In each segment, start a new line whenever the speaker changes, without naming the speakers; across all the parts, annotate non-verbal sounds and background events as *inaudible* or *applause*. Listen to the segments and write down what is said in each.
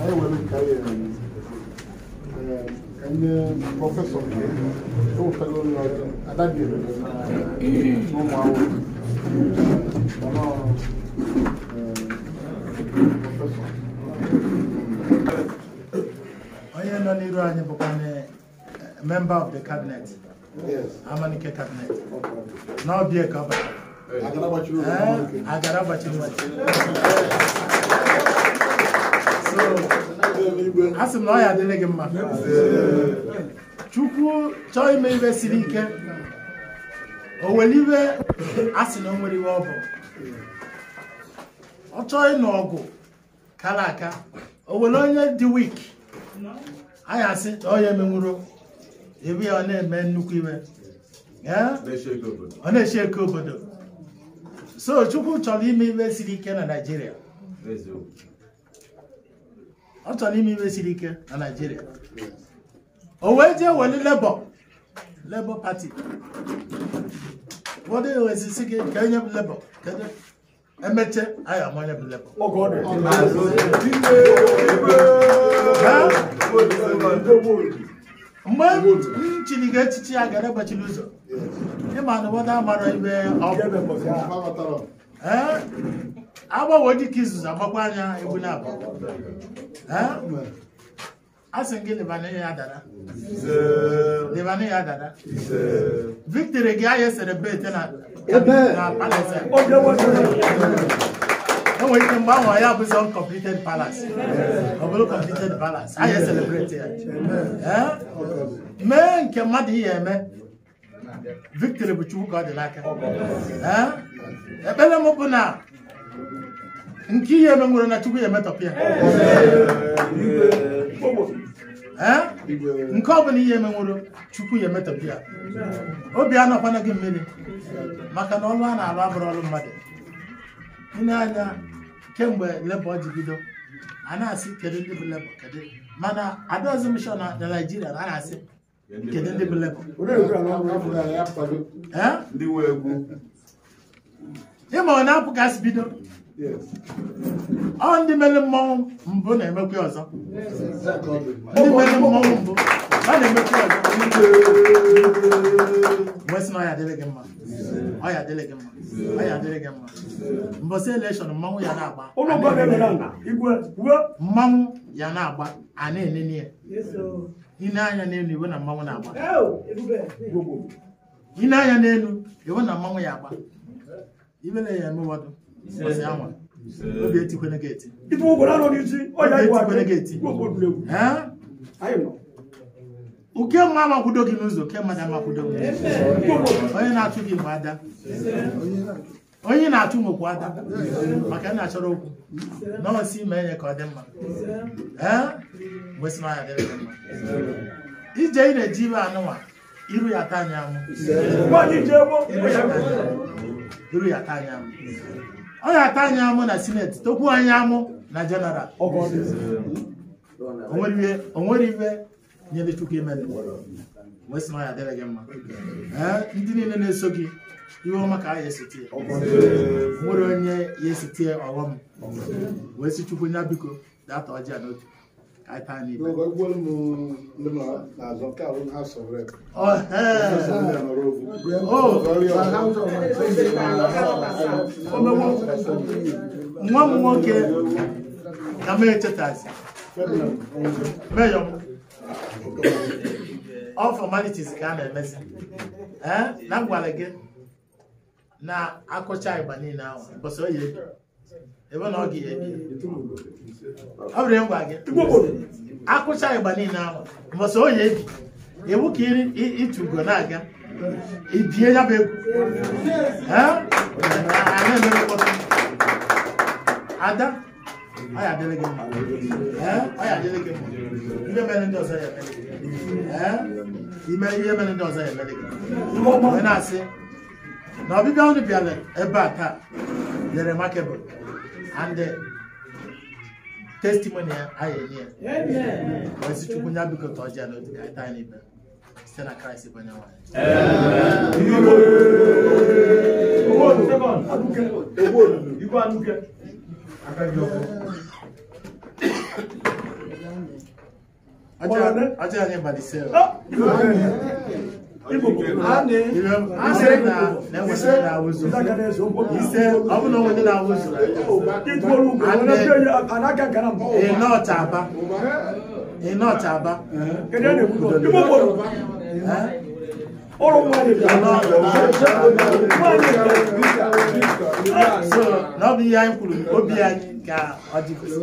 I will carry any professor here, no fellow lawyer, and that day, no more.
Onye nọ n'iru member of the cabinet. Yes. Amanike cabinet. Na ọ bịa ka Agara gbachiri Agara a sị m na ọ ya adịrị gị mma chukwu chọọ ime ibe siri ike ọ nwere iwe a sị na o nwere iwe ọ bụ ọ chọọ ịnụ ọgụ kara aka ọ nwere onye dị wik anyị asị na ọ ya emenwuro ebe ya ọ na-eme nnukwu iwe ọ na-eshi eke obodo so chukwu chọrọ ime ibe siri ike na naijiria ọ chọrọ ime ime siri ike na Naịjirịa o wee jee weli Labour Labour Party ụfọdụ ewezisi gị ka enye m Labour kedu emeche anyị amanye m Labour oh eh? mgbe m chiri ga echichi ya gara egbachila ụzọ ịma na ụfọdụ amara ibe ọ agbawo dịka izuzu agbakwa anya egbu na-abụ asị gị lebana ya dada lebana ya dada victory gị ya serebete na palace nwere ike mgbe ahụ ya abụzi uncompleted palace ọ bụrụ completed palace ahịa celebrate ya mee nke mmadụ ihe eme victory bụ chukwu ka ọ dị n'aka ekpere m bụ na nke ihe eme na chukwu ya emetọpụ ya nke ọ bụla ihe eme nwere chukwu ya emetọpụ ya obi anọkwana gị mmiri maka na ọlụ a na-alụ abụrụ ọlụ mmadụ ile anya kemgbe lebo ji bido a na-asị kedu ndị bụ lebo kedu mana adaozi mishọn na naijiria na a na-asị
kedu ndị bụ lebo
ịma ọ na-apụ ka asị bido
ọ
ndị mere mmọnwụ mbụ na-emekwa ọzọ
ndị mere mmọnwụ
mbụ a na-emekwa ọzọ wee sị na ọya adịrị gị mma ọya adịrị gị mma ọya adịrị gị mma mbọsị elekshọn mmanwụ ya na-agba mmanwụ ya na-agba a na-enene ya ine anya n'elu iwe na mmanwụ na-agba ine anya n'elu iwe na mmanwụ ya agba ibe na eme ụfọdụ obi etikwele gị eti ife n'isi uke mma gị n'ụzọ ke mmadụ amakwudo gị onye na-achụ gị nwe ada onye na-achụ nwekwu ada maka na achọrọ okwu nọọsụ ime ka ọ dị mma ee anya dịrị mma ije na-eji ibe anụwa iru ya taa anya anwụ iru ya taa anya anwụ ọ ga-ata anyị amụ na sineti tokwu anyị amụ na jeneral onwere ibe nyere chukwu imele wesị na ya dịrị gị mma ndị niile na-eso gị iwe ọma ka a ya esitie nwere onye ya esitie ọghọm wee sị chukwu nya biko
data ọjị a n'otu iPad niile
nwa m nwoke
ka m echetazi meyọ all ka a na-emezi na gwara gị na akụcha ịgba niile ahụ mbọsị oyi ebe na ọ ga-ebi ọ bụrụ ngwa gị akwụcha ịgba niile ahụ mbọsị onye ebi iwu ka ịtụ ugo na-aga ibie ya bụ egwu ada ọ ya adịrị gị mma ọ ya adịrị gị mma ndị mere ndị ọzọ ya emere gị ime ihe mere ndị ọzọ ya emere gị mgbe na-asị na ọbịbịa unu bịara ebe a taa nyere makebụl and the testimony ayɛ neɛ wɔsi tukunya bi kɔtɔ gya na odi kaita ne bɛ sɛ na k r i s t bɔ ne wɔn. Ọjọ́ ajé àyẹ̀bàdì sẹ́yọ̀. ọbụna onye na-awụzụ ịnọta aba ịnọta aba n'ọbụ ihe anyị kwuru obi anyị ka ọ dịgosi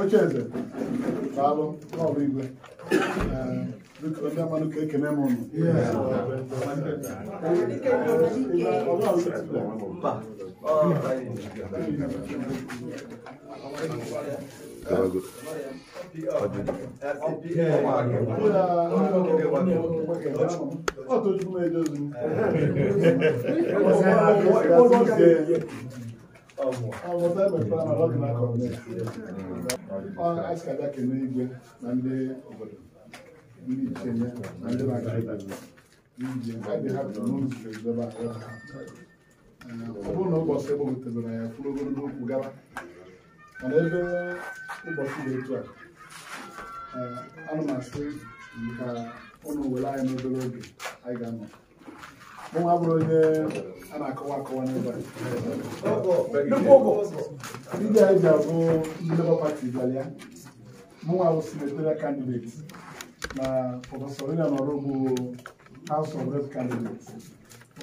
ocheeze daalụ ọrụ igwe o ndị amadụ ka ekene m ụnụ ọ tojukwụ m ejozu m ọmụ ọmụ taịmụ ekpere na ọ dị n'akọ asikada kene igwe na ndị obodo ndị na ndị na-aga iji ha bụ n'ụzọ ọ bụrụ na ụbọchị ebe ya kwuru ogologo okwu mana ebe ụbọchị dị a eh, ana m asị ka n'obere oge anyị ga Mwen avro de anakawa kawa neba. Lupogo. Ndị anyị ji abụ ndị Labour Party bịalịa. Mụnwa bụ senatorial candidate na Prọfesọ Rina Nọrọ bụ House of Rep candidate.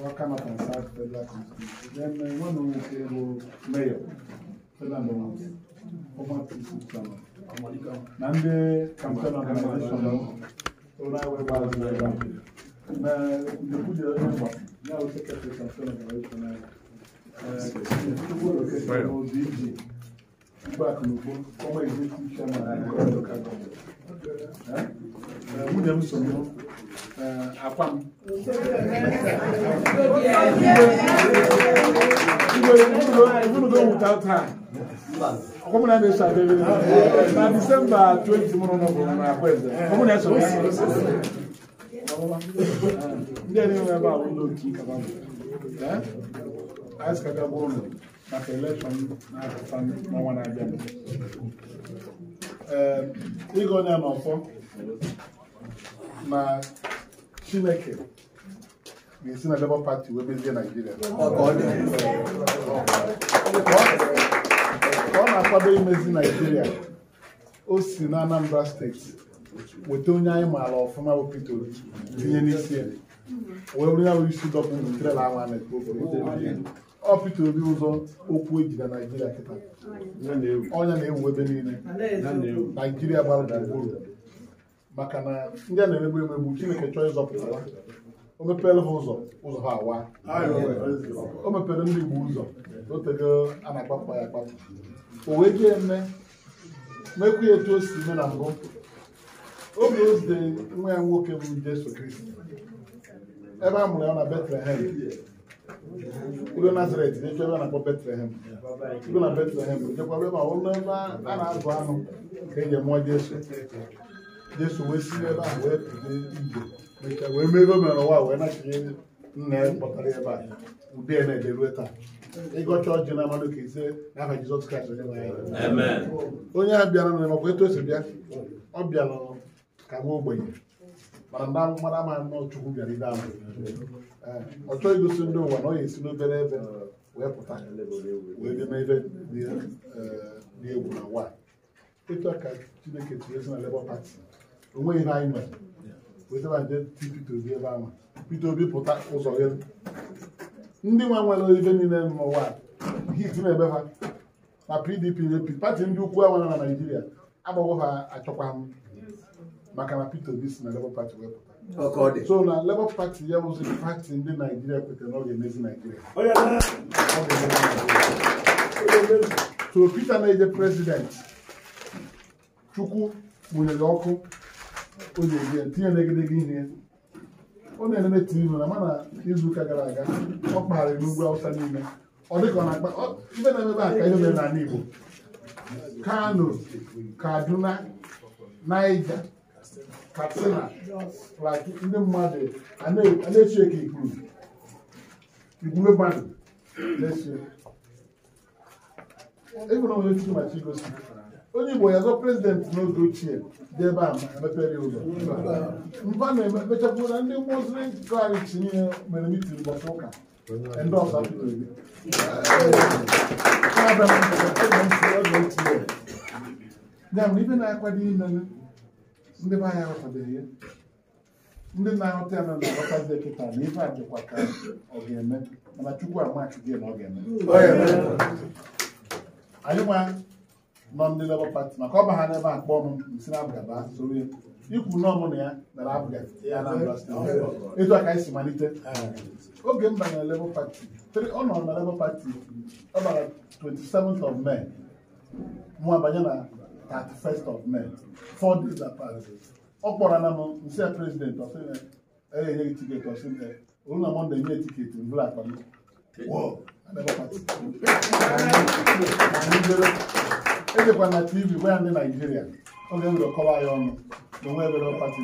Waka na South Federal Constitution. Then eh, nwanne m nwoke bụ Mayor Federal Nọrọ. Ọma Tisikwama. Na ndị campaign organization. Ụlọ anyị wee gbara que Nikuja hapa nao sasa tutasema kwa hiyo na eh kwa moziji ba kunuko kama hizo kisha na kwa kaka eh muda
msomo eh apam
Komuna ne sa bebe na December 20 mwana na kwenda. Komuna so. ndị a na-enwe ebe ahụ ụlọ oke ikaba anyị sikagaba ụlọ maka elekshọn na-apụta n'ọnwa na-abịa ee ịga onye n'ọfọ na chineke ga-esi na Labour Party wee mezie Naijiria ọ na-akwado imezi Naijiria o si na Anambra steeti weta onye alo maala ọfụma pito tinye n'isi ya wee isi dọpụ ntrela awa na ọ Peter Obi ụzọ okwu ejida na-ewu ebe niile Naijiria gbara gburugburu maka na ndị a na-emegbu emegbu Chineke chọọ ịzọpụta ha o mepere ha ụzọ ụzọ ha awa o mepere ndị Igbo ụzọ a na-akpapụ ya akpapụ o wee jee eme mekwu ya etu o si eme na mbụ oge o zitere nwa ya nwoke bụ Jesu Kristi ebe a mụrụ ya na Betlehem ụlọ Nazaret na-ekwe ebe a na-akpọ Betlehem ụlọ na Betlehem jekwa ebe a ụlọ ebe a na-azụ anụ ka e ji mụọ Jesu Jesu wee si ebe a wee pụde ije mechaa wee mee ebe mere ụwa wee nachie nna ya kpọtara ebe a ụdị ya na-ede ruo taa ịgọcha ọjị na mmadụ ka ise n'aha Jizọs Kraịst onye a bịara na makwa etu o bịa ọ bịa n'ọnụ. ka nwa ogbenye mana ndị amụmara ama nnọọ chukwu bịara ibe ahụ eh, ọ chọghị igosi ndị ụwa na ọ ga-esi n'obere ebe wee pụta wee bịa n'ebe eh, egwu na nwa ịtụ ka chineke tinye na onweghị ihe anyị ebe ahụ Obi pụta ụzọ ndị na-ebe ha ha achọkwa maka na Peter Obi si na Labour Party wepụta oh, so na Labour Party ya bụzi pati ndị Naijiria kwetara na ọ ga-emezi Naijiria so Peter na-eje president Chukwu mụnyere ọkụ o ji tinye n'egedege ihe ọ na-elele tiivu na mana ụka gara aga ọ kpagharịrị n'ugwu Awụsa n'ime ọ dịka ọ na-akpa ibe na-emebe aka ihe mere n'ala Igbo Kano Kaduna Naija katsina like ndị mmadụ a na-echi eke ikpuru igwube banụ na-echi ebe na onye chukwu machi gosi onye igbo ya zọ prezidenti n'oge ochie dị ebe a mepere ụzọ mba na-emechapụ na ndị mozri kraịst niile mere mitin ụbọchị ụka ndị ọsa pụtara ya bụ ibe na-akwado imere ndị be anyị aghọtabeghị ya ndị na-aghọta ya na na-aghọtazi kịta na ife a ka ọ ga-eme mana chukwu amachughị na ọ ga-eme anyị nwa nọ ndị lebọ pati maka ọba ha n'ebe a kpọọ m nsi na abụgaba soro ya ikwu na ya abụga ya na etu a ka anyị malite oge m banyere lebọ pati ọ nọrọ na ọ bara 27th of May mụ abanye na 31st of May four days apart ọ kpọrọ na m nsi prezident enye gị tiketi ọsị olu na mọnde nye tiketi mbụla akpa m ejekwa na tv gwa ndị naijiria oge m ga-akọwa ya ọnụ na onwe ebere pati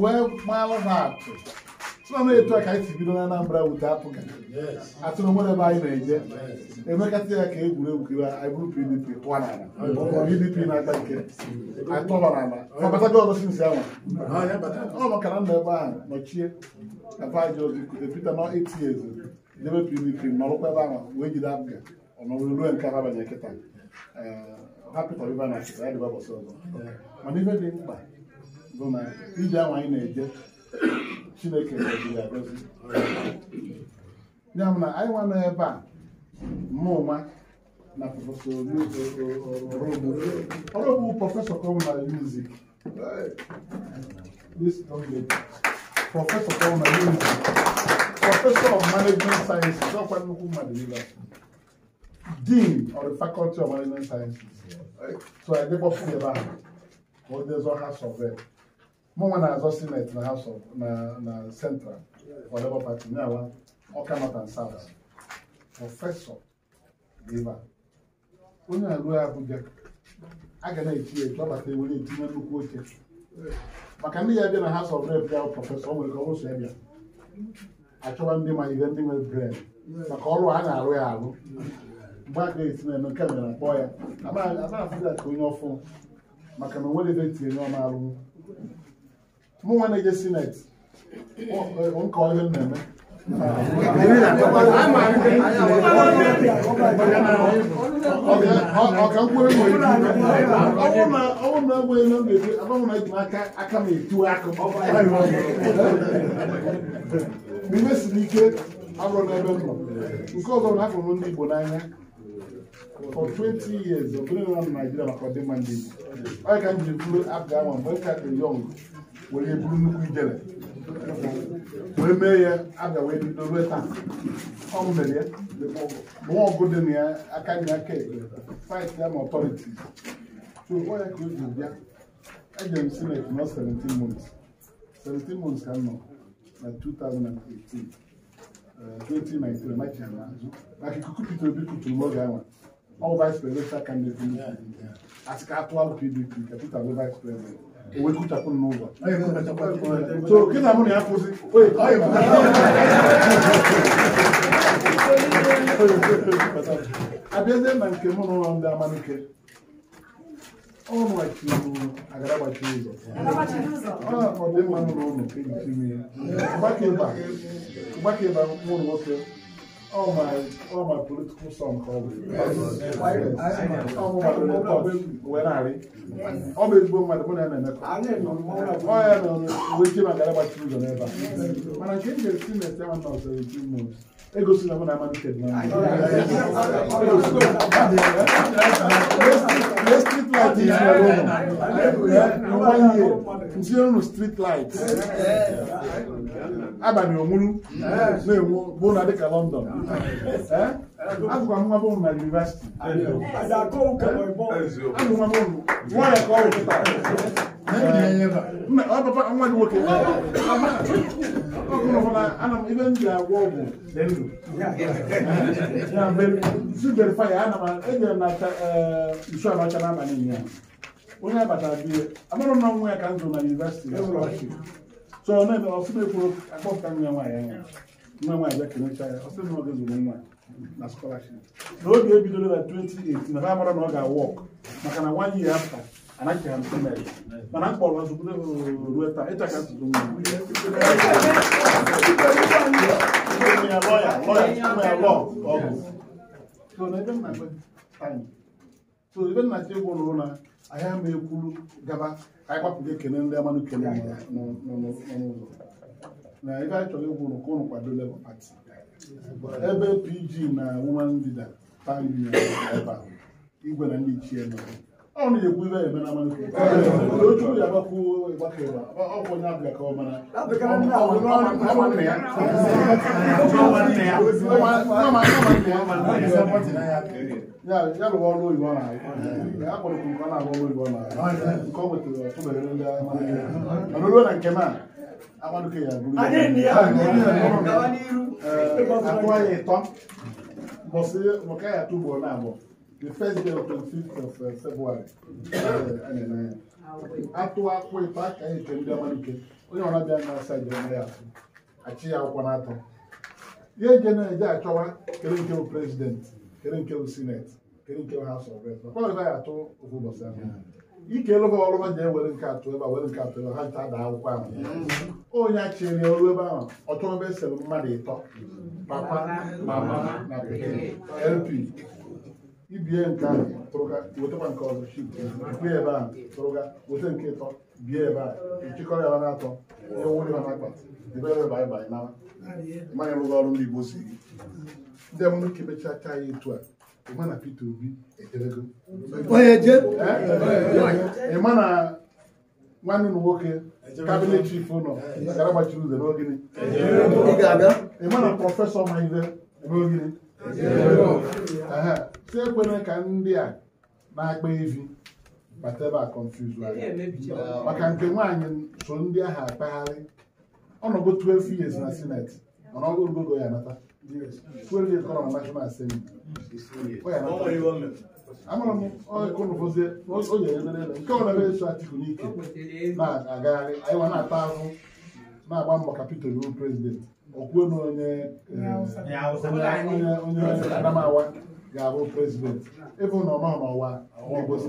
wee maalụ ha atụ sọnụ etu a ka anyị si bido na Anambra wute apụga atụrụ ebe anyị na-eje emekasị ya ka egwuregwu kiwa anyị bụrụ PDP pụọ n'ala PDP na-ata nke atọba n'ala ọbatago ọzọ sinsi ọ makara ebe ahụ nọchie ebe anyị ọzọ ikuze Peter debe PDP nọrụkwa ebe ahụ wee jide apụga ọnọrụ ruo nke ibe na achịta ya dịba ọzọ mana dị mkpa bụ na ije ahụ anyị na-eje chineke gọziri ya gọzi ya na anyị nwa nọ ebe a mụnwa na prọfesọ ọrụ bụ prọfesọ kọmna music prọfesọ kọmna music prọfesọ of management sciences ọkwa nnukwu mmadụ ibe dean of the faculty of management sciences so adịkpọpụ ebe ahụ ka ọ dezo ha sọvel mụnwa na-azọ sineti na House of na Central for Labour Party nyawa Ọka North nsaba prọfesọ dịba onye na-arụ Abuja a ga na-eti etu ọbata ewu na-etinye nnukwu oche maka ndị ya bịa na House of Rep ya prọfesọ nwere ka ọ so ya bịa achọba ndị ma ihe ndị nwere bred maka ọrụ a na-arụ ya arụ mgbe a ga-esi na-eme nke mere na kpọọ ya amaghị afụzi ka onye ọfụ maka na o nwere ebe etinye onye ọma arụnwụ mụ nwa na-eje sinet nke ọhịa na-eme
ọka mkpụrụ nwere ọnwụ na agba elu m
na-eji agbanwe na ejim aka aka m etiwe akụ mime si n'ike abụrụ n'ebe m nọ nke ọzọ na afọ ndị Igbo n'anya for 20 years of being around Nigeria maka ọdịmma ndị Igbo ọ ka m jiri kwuru abụ ama mgbe m ka dị yọng wòle ebulu nnukwu ijele wee mee ya aga wee bido rue taa ọ mere ya nwa ọgụ dị na aka na aka fight ya ma ọtọriti so ọ ya ka o ji bịa ejere m sinet nọ 17 months 17 months ka m nọ na 2018 2019 machi na azụ maka ikuku Peter Obi kuturu n'oge ahụ ọ bụ vice presidential candidate asị ka atụwa pdp ka Peter bụ vice president huwezi kuchapụ n'ụlọ so kịta mụ na ya kwụsị abịazie na nke mụ n'ụlọ ndị ya ịba nwụrụ all my all my political songs always. Yes. I, I, I know. When I read, always go my money and never. I know. Why I know? We came and got about children ever. When I came here, seen the seven months or eighteen months. Ego sinna mo na ama
dukɛ duma. Ne street light yi sinna mo na. One year, n
sinna mo street light. abalị onwuru na-enwu bụ na dịka London eh? agụkwa nwa bụ na yunivesiti nwanyị ka ọ wụta
ọpapa nwa gị nwoke
ibe m ji agwọ ọgwụ dị ndụ zubere faya ana m ejere na eh, nsu abacha n'abalị ya onye abatara biye amarọ m na nwa ya ka m na yunivasiti. so ọ na-eme ọfụma ekwuru akpọpụta nwa nwaanyị anya nwa nwaanyị bịa kenecha ya ọsị na ọ ga-ezuru nwa na scholarship na oge ebidoro na 2018 na ha mara na ọ ga-awọk maka na one year after anaghị ha ntụ mere mana m kpọrọ azụ bụdo ruo taa ịta ka
ntụtụ
nwa ya lọya lọya lọ ọgụ
so na ebe m na so ibe nna chi egwu lụrụ na ahịa ma ekwuru gaba ka anyị gbapụga ekene ndị amanụ kele n'ụzọ na ibe anyị chọrọ egwu ka ụnụ kwado lebọ pati ebe PG na wuman leader pan union ebe a igwe na ndị ichie nọ ọ na-ekwu ibe eme na amalite ya agbapụ gbakere ọkwụ onye abịa ka ọ mara ya rụwa ọrụ oyibo ọ na-arụ akpọrọ nke ọ na ọrụ oyibo na nke ọ nwetara ọtụbere ndị amara ruo na nke ma a amaduke ya bụrụ akụwa ya ịtọ mbọsị maka ya na abụọ the first day of the fifth of uh, February ẹnẹ nẹ ato back? I ka yi my dama no ke onye ɔna bia na asa gyina na yaso akyi ya akɔ general atɔ yɛn gye na ɛgye atwɛwa kere president kere nke senate kere nke house of reps ɔkɔɔ na yàtɔ ofu bɔsɛ ɛfɛ ike lɔbɔ ɔlɔbɔ jɛ wɛrɛ nke ato ɛba wɛrɛ nke ato ɛba ha nta da akwụkwɔ ahụ onye akyere ya ɔlụ ebe ahụ ɔtɔn bɛ sɛlɛ mmadụ papa mama na pikin lp ibie nke a wetakwa nke ọzọ shi bie ebe a tụrụga weta nke ịtọ bie ebe a ịchịkọrọ ya na-atọ ihe nwụrụ ya n'akpa debe ebe banye banye na mmanya rụga ọrụ ndị Igbo si gị ndị mụrụ ka emechaa ka ya etu a ịma na Peter Obi ejebego ịma na nwanne ụlọ nwoke kabinet chief ụlọ gara gbachiri ụzọ n'ogini ịma na prọfesọ ma ibe ebe ogini si ekwena ka ndị a na-akpa evi bateba confuse maka nke nwaanyị so ndị ahụ akpagharị ọnọdụ 12 years na senate mana ya nata ọ national m nke ọ na-ebe eso Atiku n'ike na-agagharị anyị nwa na-ata ahụ na-agba mbọ ka prezident okwuo na onye onye Adamawa ga-abụ prezidenti ịbụ nọ nọ n'ọwa Igbo si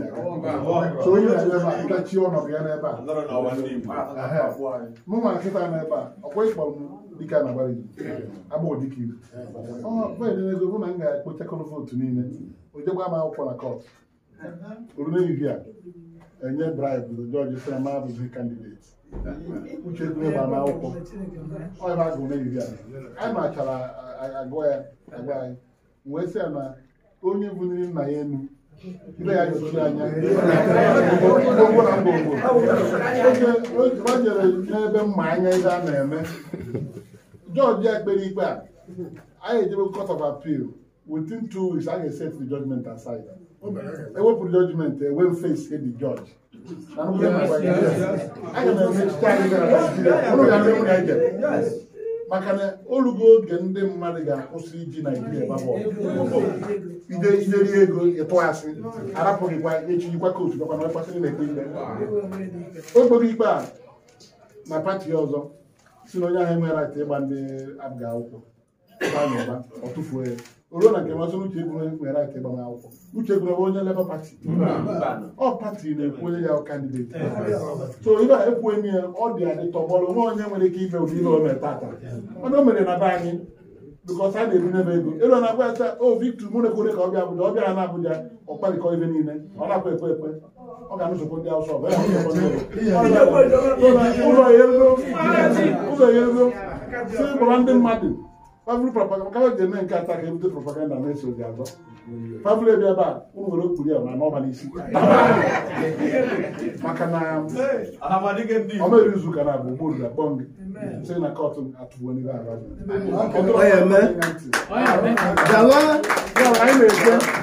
so onye na-ebe ntachi ọnọdụ ya n'ebe a nkịta n'ebe a bụ na m ga-ekpochakọrọ vootu niile ojegba m akwụkwọ na kọt orunehihie a enye bribe jọji sị ma abụghị kandideti uche gbe akwụkwọ ọ ebe a a anyị machara onye buniri nna ya elu nne ya jọchiri anya ngwongwo na ngwongwo oge gbanyere n'ebe mma anya ihe a na-eme jọji ya kpere ikpe a anyị ejebe court of appeal within two weeks a ga-eset the judgment aside ewepụrụ e judgment ewe face the judge aga m emechicha anyị gara Naijiria ụrụ ya ndị nwunye maka na olugo oge ndị mmadụ ga-akwụsị iji naijiria iderie ego ịtụghasị arapụghịkwa echirikwa kootu gakwa na ọkpasịrị na-ekpe
ikpe
o ikpe a na pati ọzọ si na onye ahụ enweghị rait ịgba ndị abga akwụkwọ ụba na ọ tụfuo ya oruo na nke masịrị uche egwure nwere aka agbamakwụkwọ uche egwure onye Labour Party ọ pati na-ekwu onye ya kandideti so ibe a ekwughị ya ọ dị adị tọgbọrọ nwa onye nwere ike ibe ụdị ihe o mere tata mana o mere na be anyị bikọs a na-ebinye m ego elu na agwa ya o oh, Victor mụ na-ekwere ka ọ bịa Abuja ọ bịara na Abuja ọ kparịkọ ibe niile ọ na-akwa ekwe ekwe ọ ga anụzụkwa ndị Awụsa ụlọ ya ego si gbara ndị mmadụ pavl propaganda ka ji eme nke ata ka ebute propaganda na-eso gị azọ pavl ebe ebe a ụmụ nwere okpuru ya na n'ọba n'isi *laughs* maka na ọmeri izu ụka na abụ ugbo ruru gị sị na kọtụ atụgbuo n'ihe arụ anyị na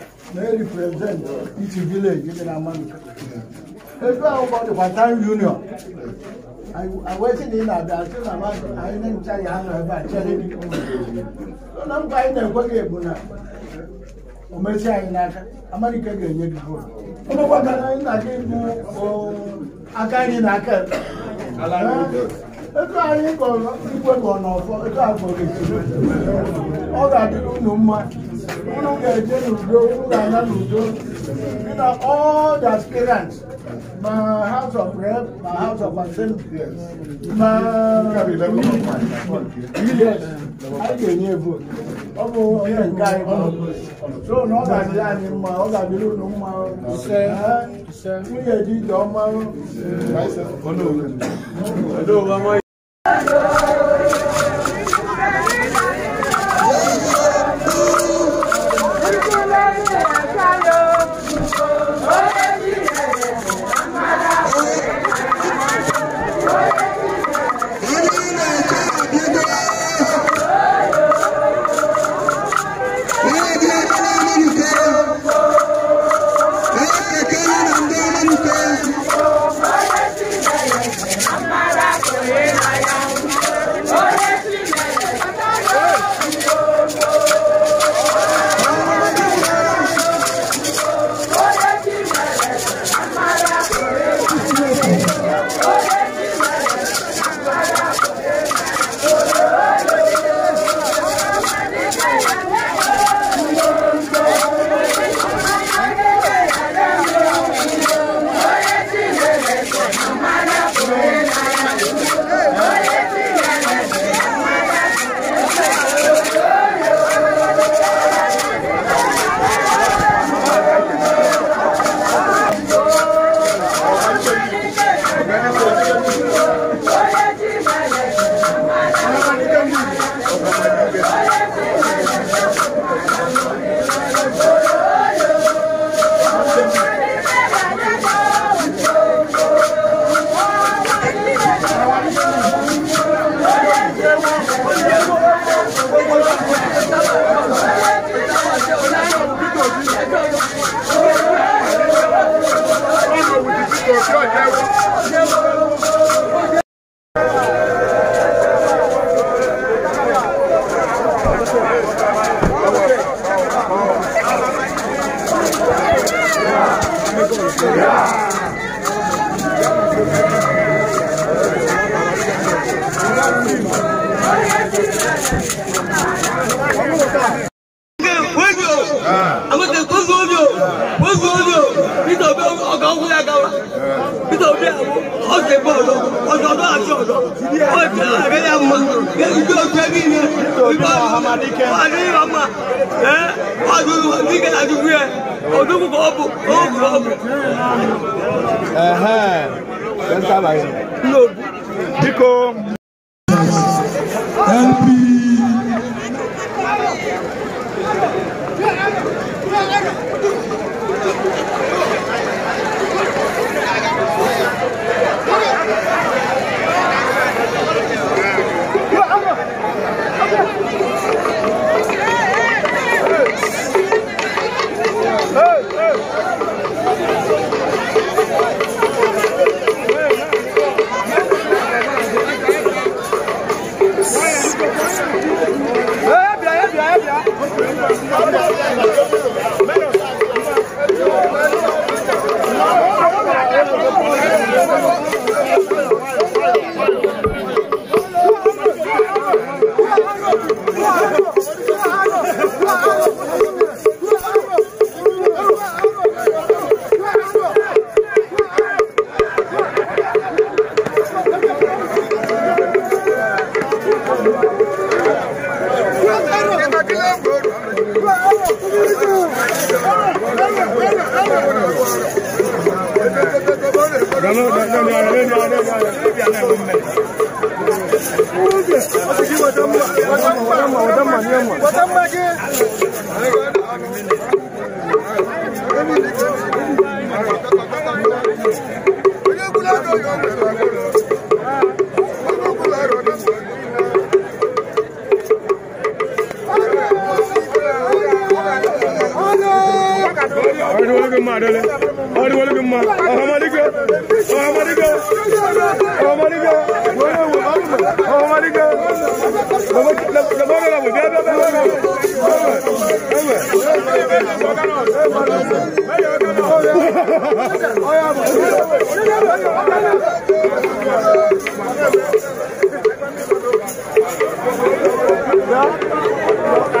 na e represent each village dị na Amalike ebe akwụkwọ dịkwa town union awesi na ị na-abịa asị na anyị na-encha ya anọ ebe a chere
na mkpa anyị na-ekwe gị bụ na o mesi anyị n'aka
Amalike ga-enye gị votu
anyị na gị bụ aka anyị na aka
ego anyị kọrọ igwe kọ n'ọfọ ego agụrụ ọ ga-adịrị unu mma unu ga-eje n'udo unu ga-aga n'udo bina all the aspirants ma house of rep ma house of assembly ma yes anyị ga-enye vote ọ bụ onye nke anyị so na ọ ga-adị We mma ọ ga-adịrị unu mma nwunye dị ije
ọma
ma dole wani wani bin ma ahmadiga ahmadiga ahmadiga ahmadiga da ba gara mu da da da Thank you.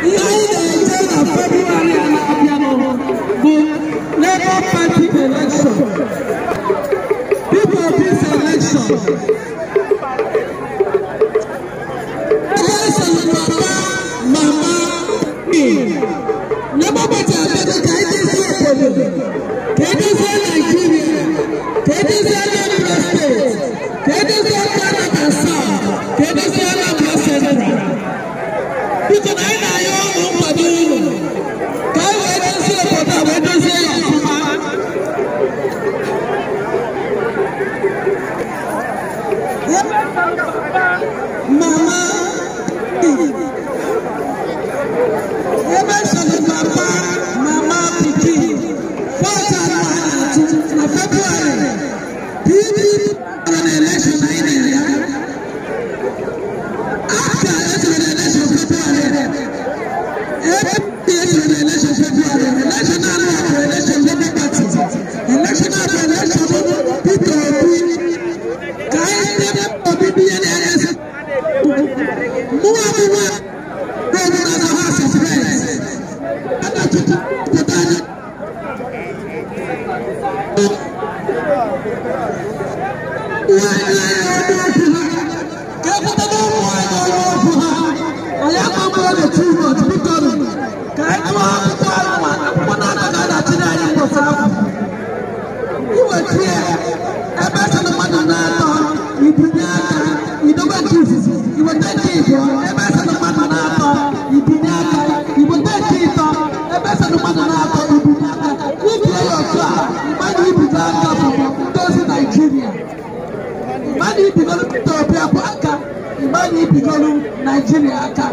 Labour Party People of this
election.
Yeah. ebigolu naijiria aka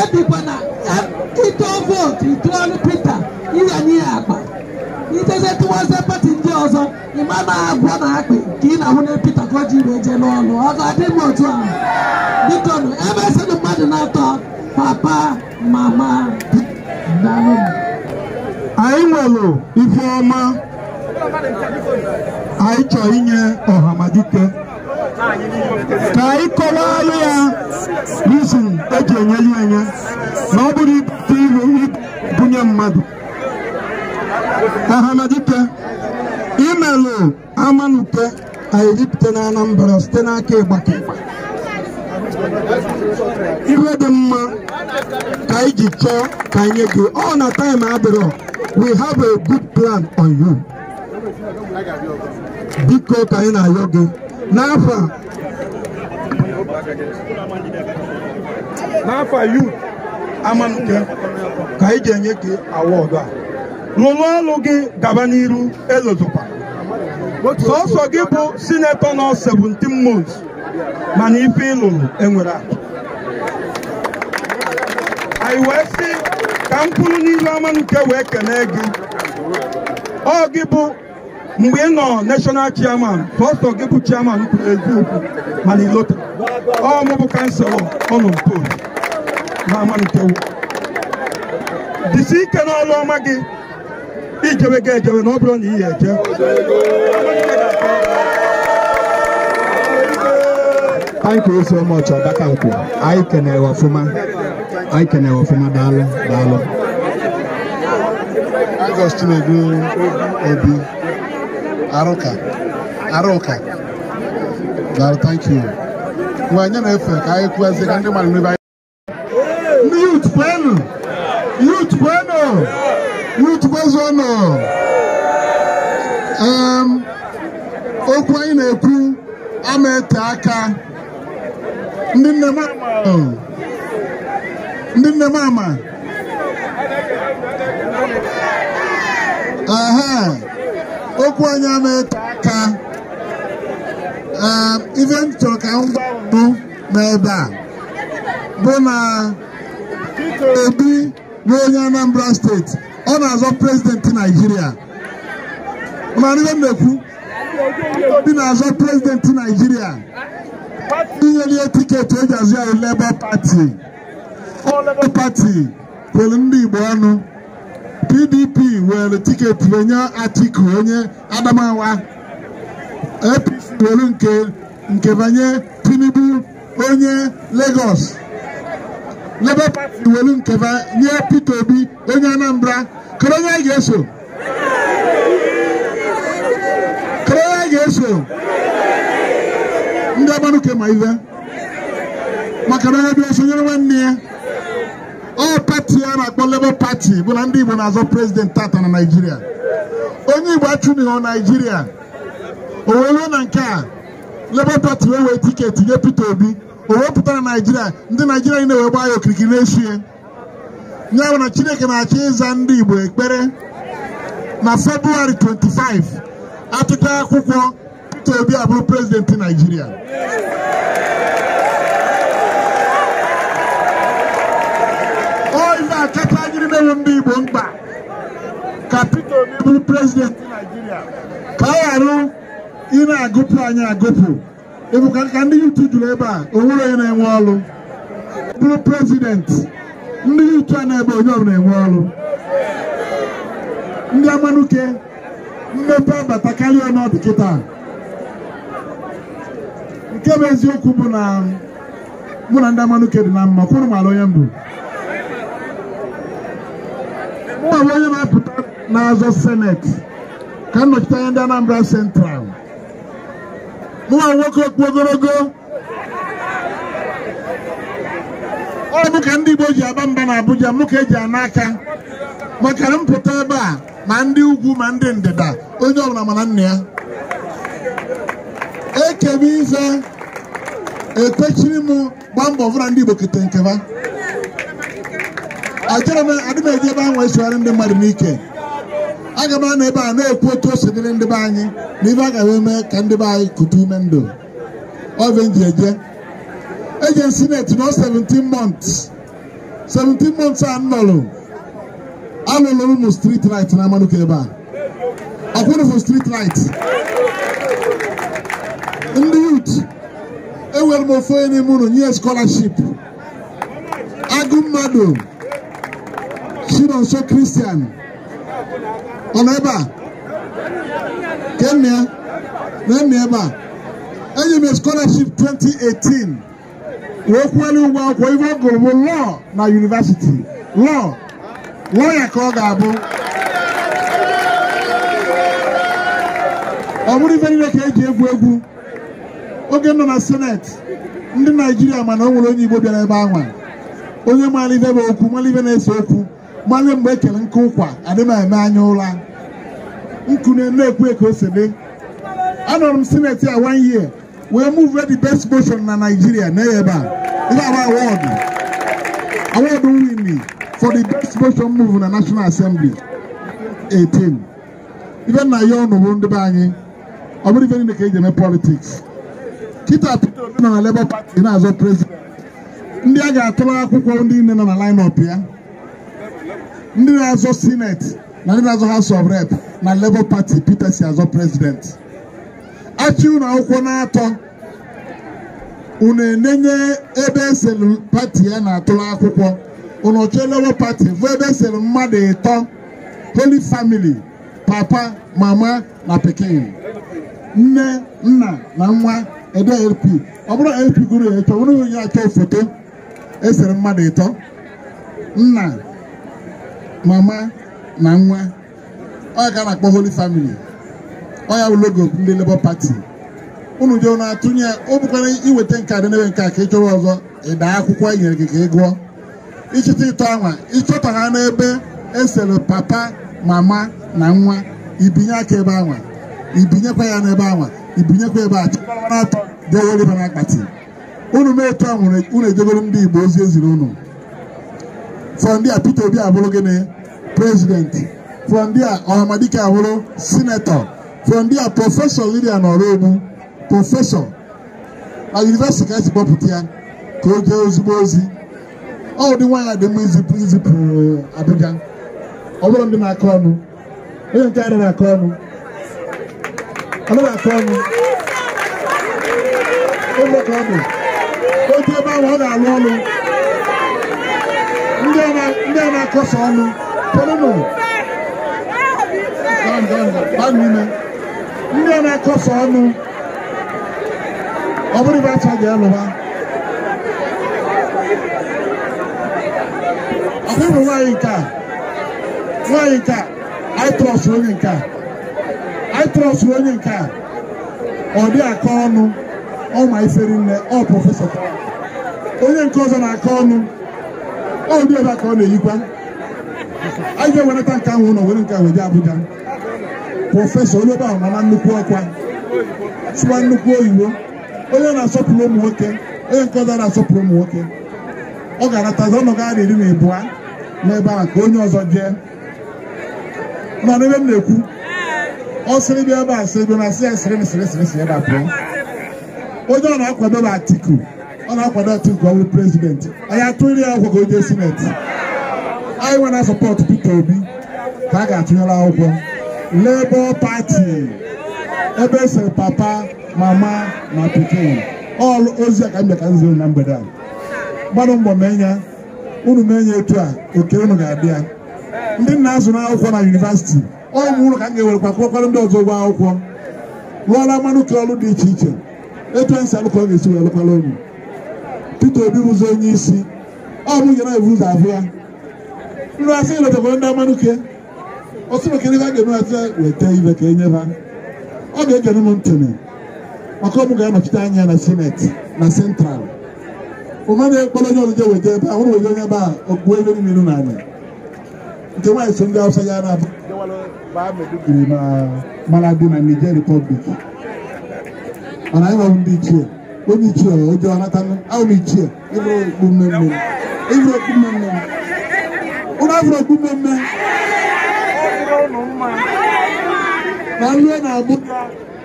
ebikwana ịtụọ vootu ịtụọlụ pita ịghanye ya akpa iteze tụwazie pati ndị ọzọ ịma na agwọ na akpị ka ị na-ahụ na pita ka o ji iwe jee n'ọlụ ọ ga-adị m otu ahụ biko nụ ebe esịrị mmadụ na-atọ papa mama daalụ anyị nwere ife ọma anyị chọọ inye ọhamadike ka anyị kọwalụ ya rizin eji ya enye na ọ bụrụ ibute iru ibunye mmadụ ahamadike imelụ amanute anyị ripụta na Anambra site n'aka ịgbake iwe dị mma ka iji chọọ ka anyị gị ọ na taịm adịrọ we have a good plan on you biko ka anyị na-ayọ gị n'afọ a
n'afọ a youth amanụke ka anyị ga-enye gị awọdụ a lụrụ ọlụ gị gaba n'iru elozukwa sọsọ gị bụ sinetọ
nọ seventeen months mana ife ịlụrụ enwere atụ anyị wee sị ka mkpụrụ n'iru amanụke wee kelee gị ọ gị bụ mgbe ị nọ national chairman pastọ gị bụ chairman kwuru eziokwu mana ilota ọ mụ bụ kanselọ ọ nọ mpol
na amanitewo dịsi ike n'ọlụ ọma gị ijewe ga ejewe na ọ bụrụ na ị anyị eje
Thank ọma so daka Ọdakankwo anyị kenere ọfụma anyị kenere ọfụma daalụ daalụ Augustine Obi Arụka Arụka daalụ thank you mgbe na-efe ka anyị kwuazie ka ndị mmadụ n'ebe anyị ndị yut kwenu yut kwenu yut kwezuonụ um, okwu anyị na-ekwu ama ete aka ndị nne m ndị nne m ama aha okwu onye na-eto aka ehm, ihe m chọrọ ka m gwa mbụ n'ebe a bụ na ebi n'onye Anambra steeti ọ na-azọ prezidenti Naijiria mana ife m na-ekwu na-azọ prezidenti Naijiria ihe tiketi eji azụ ya Labour Party ọ Labour kwere ndị Igbo ọnụ PDP were tiketi wenye Atiku onye Adamawa APC were nke nke banye Tinubu onye Lagos Labour Party were nke banye pito Obi onye Anambra kere onye anyị ga-eso
kere onye anyị ga-eso
ndị agbanụke ma ive maka na onye bịa sonyere nwanne ya ọ pati a na-akpọ Labour Party bụ na ndị Igbo na-azọ prezident tata na Naịjirịa onye Igbo achụbighị Naịjirịa o wee ruo na nke a Labour Party wee wee tiketi nye Peter Obi o wee na Naịjirịa ndị Naịjirịa niile wee gbaa ya okirikiri na-esu ya ya na Chineke na-achọ ịza ndị Igbo ekpere na February 25 atụta akwụkwọ Peter Obi abụrụ prezidenti Naịjirịa
adịghị ndị Igbo mkpa
ka Peter Obi bụrụ prezidenti
Naijiria ka ọ ghara
ị na-agụpụ anyị agụpụ ịbụ ka ndị yutu juru ebe a onwere onye na-enwe ọrụ bụrụ prezidenti ndị yutu a na-ebe onye ọbụla enwe ọrụ ndị amanuke mmepe abata karịa ọnọdụ kịta nke bụ eziokwu bụ na mụ na ndị amanuke dị na mma kwụrụ mara onye mbụ mụ abụ na-apụta n'azọ seneti ka nnọchite anya ndị Anambra sentral mụwa nwoke okpu ogologo ọ bụ ka ndị Igbo ji aba mba na Abuja mụ ka eji ana makara maka mpụta ebe a ma ndị ugwu ma ndị ndịda onye ọbụla mana nna ya ekebe etechiri m gbaa mbọ ọbụla ndị Igbo kete nkeba achọrọ m adị m eji ebe ahụ esogharị ndị mmadụ n'ike aga m anọ ebe a na-ekwu otu o dịrị ndị be anyị na ibe a eme ka ndị be anyị kute ume ndụ ovenji eje eje sineti nọ 17 months 17 months a nọrụ alụlụ ụmụ strit light na amanuka ebe a ọkwụrụ akwụrụfụ strit light ndị yut ewere m ofe onye n'ime ụlọ nye scholarship agụ mmadụ Chinonso Christian ọ nọ ebe a kenne nenne ebe a enye scholarship 2018 wee kwuelu ụgwọ akwụkwọ ife ọ gụrụ bụ lọọ na yunivasiti lọọ lọọ ya ka ọ ga-abụ ọ bụrụ ife niile ka e ji egwu egwu oge nọ na seneti ndị naijiria mana ọ nwere onye igbo bịara ebe ahụ onye maara ife bụ okwu na-ese okwu malụ mgbe ekele nke ụkwa adịm eme anya ụra nkune na-ekwu ka o anọrọ m sineti a one year wee move the best motion na Nigeria na ebe a ihe aba awọdụ award win for the best motion move na National Assembly 18 ibe nna ya ọnụ bụ ndị be anyị ọ bụrụ ife niile ka eji eme politiks Kita Peter Obi nọ na Labour Party na-azọ prezident ndị a ga-atụrụ akwụkwọ ndị niile nọ na line ya ndị na-azọ sineti na ndị na-azọ House of Rep na Labour Party Peter si azọ prezidenti achị unu akwụkwọ na-atọ unu enenye ebe eselu pati ya na-atụrụ akwụkwọ unu ọchọ Labour Party bụ ebe eselu mmadụ ịtọ Holy Family papa mama na pikin nne nna na nwa ede LP ọ bụrụ LP gụrụ ya ịchọ bụrụ onye achọ foto esere mmadụ ịtọ nna mama na nwa ọ ka na-akpọ Holy Family ọ ya ndị Labour pati unu je na atụnye ọ bụkwara iweta nke a dị nke a ka ị chọrọ ọzọ ịda akwụkwọ e nyere gị ka ị gụọ ịchịta ịtọ anwa ịchọta ha n'ebe esere papa mama na nwa ibinye aka ebe anwa ibinyekwa ya n'ebe anwa ibinyekwa ebe na-atụ dewere na akpati unu mee etu a nwere unu ejegoro e ndị Igbo ozi eziri unu fọ ndị a Peter Obi abụrụ gịnị President, from there ọhamadike ahụrụ sinetọ from there prọfesọ lidia nọrọ egbu na yunivesiti ka esi kpọpụta ya ka o jee ozugbo ozi ọ ụdị nwaanyị dị mma izipụ izipụ abịga ọ bụrụ ndị na-akọ ọnụ
onye nke adịghị akọ ọnụ adịghị akọ ọnụ ebe ka ọ bụ otu ebe ahụ ọ ga-alụ ọnụ ndị a na-akọsa ọnụ
ndị a na-akọsa ọnụ ọ bụrụ ibe acha ga-alụba ọhụrụ nwaanyị nke a nwaanyị nke a aitrọs onye nke a aitrọs onye nke a ọ dị aka ọnụ ọ ma ifere nne ọ prọfesọ onye nke ọzọ na-aka ọnụ ọ dị ebe a ka ọ na-eyikwa anyị ga-ewereta nke ahụ ụlọ were nke ahụ jee Abuja prọfesọ onye ebe ahụ nnukwu ọkwa sụwa nnukwu oyibo onye na-asọpụrụ ụmụ nwoke onye nke ọzọ na-asọpụrụ ụmụ nwoke ọ ga-anatazi ọnọdụ ahụ iri na ịbụa n'ebe a ka onye ọzọ jee mana ebe m na-ekwu ọ sịrị bịa ebe a sịrị bịa na sị ya sịrị sịrị sịrị sịrị ebe a pụọ onye ọ na-akwado bụ Atiku ọ na-akwado Atiku ọ bụ prezidenti anyị atụrụ ya ọgwụ ka o jee sineti anyị nwere sọpọtụ Peter Obi ka a ga-atụnyere akwụkwọ Labour Party ebe esere papa mama na pikin ọlụ ozi a ka m ka m na mgbede a gbara mbọ menya unu menye etu a oke unu ga-abịa ndị nna azụ akwụkwọ na yunivasiti ọmụ ụlọ ka m ga-ewerekwa kwụkwara ndị ọzọ ụgwọ akwụkwọ lụọla mmanụ ka ọrụ dị iche iche etu esi alụkọ ga-esi wee lụkwara unu Peter Obi bụzi onye isi ọ bụ na ebu ụzọ abụ ya ndị asị letabara ndị amanuke ọsụmaka ebe a ga-eme asị weta ibe ka enye ha ọ ga-egene m ntụnụ maka ọmụ ga-anọchite anya na sineti na sentral ụma na onye ọzọ weta ebe weta onye ebe a okpuo ebe niile n'anya nke nwaanyị so ndị awụsa ya na-abụ na mara dị na Niger mana anyị nwere ndị ichie onye ichie ụjọ anatanụ ahụ m ichie ịbụrụ okpu mmemme ịbụrụ
okpu mmemme unu afụrụ okpukpe mme na ihe na-abụ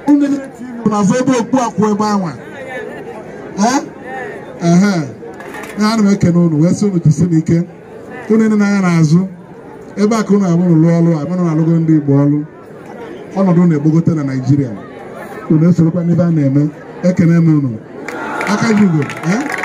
ụmụazụ ebe okpu akwụ ebe
anwa ana m ekene unu wee sị unu jisi n'ike unu ịnị na azu ebe a ka unu abụrụ lụọ ọrụ abụrụ na-alụgo ndị Igbo ọrụ ọnọdụ na-egbogote na Naịjirịa unu esorokwa n'ebe a na-eme ekene m unu aka ji ugo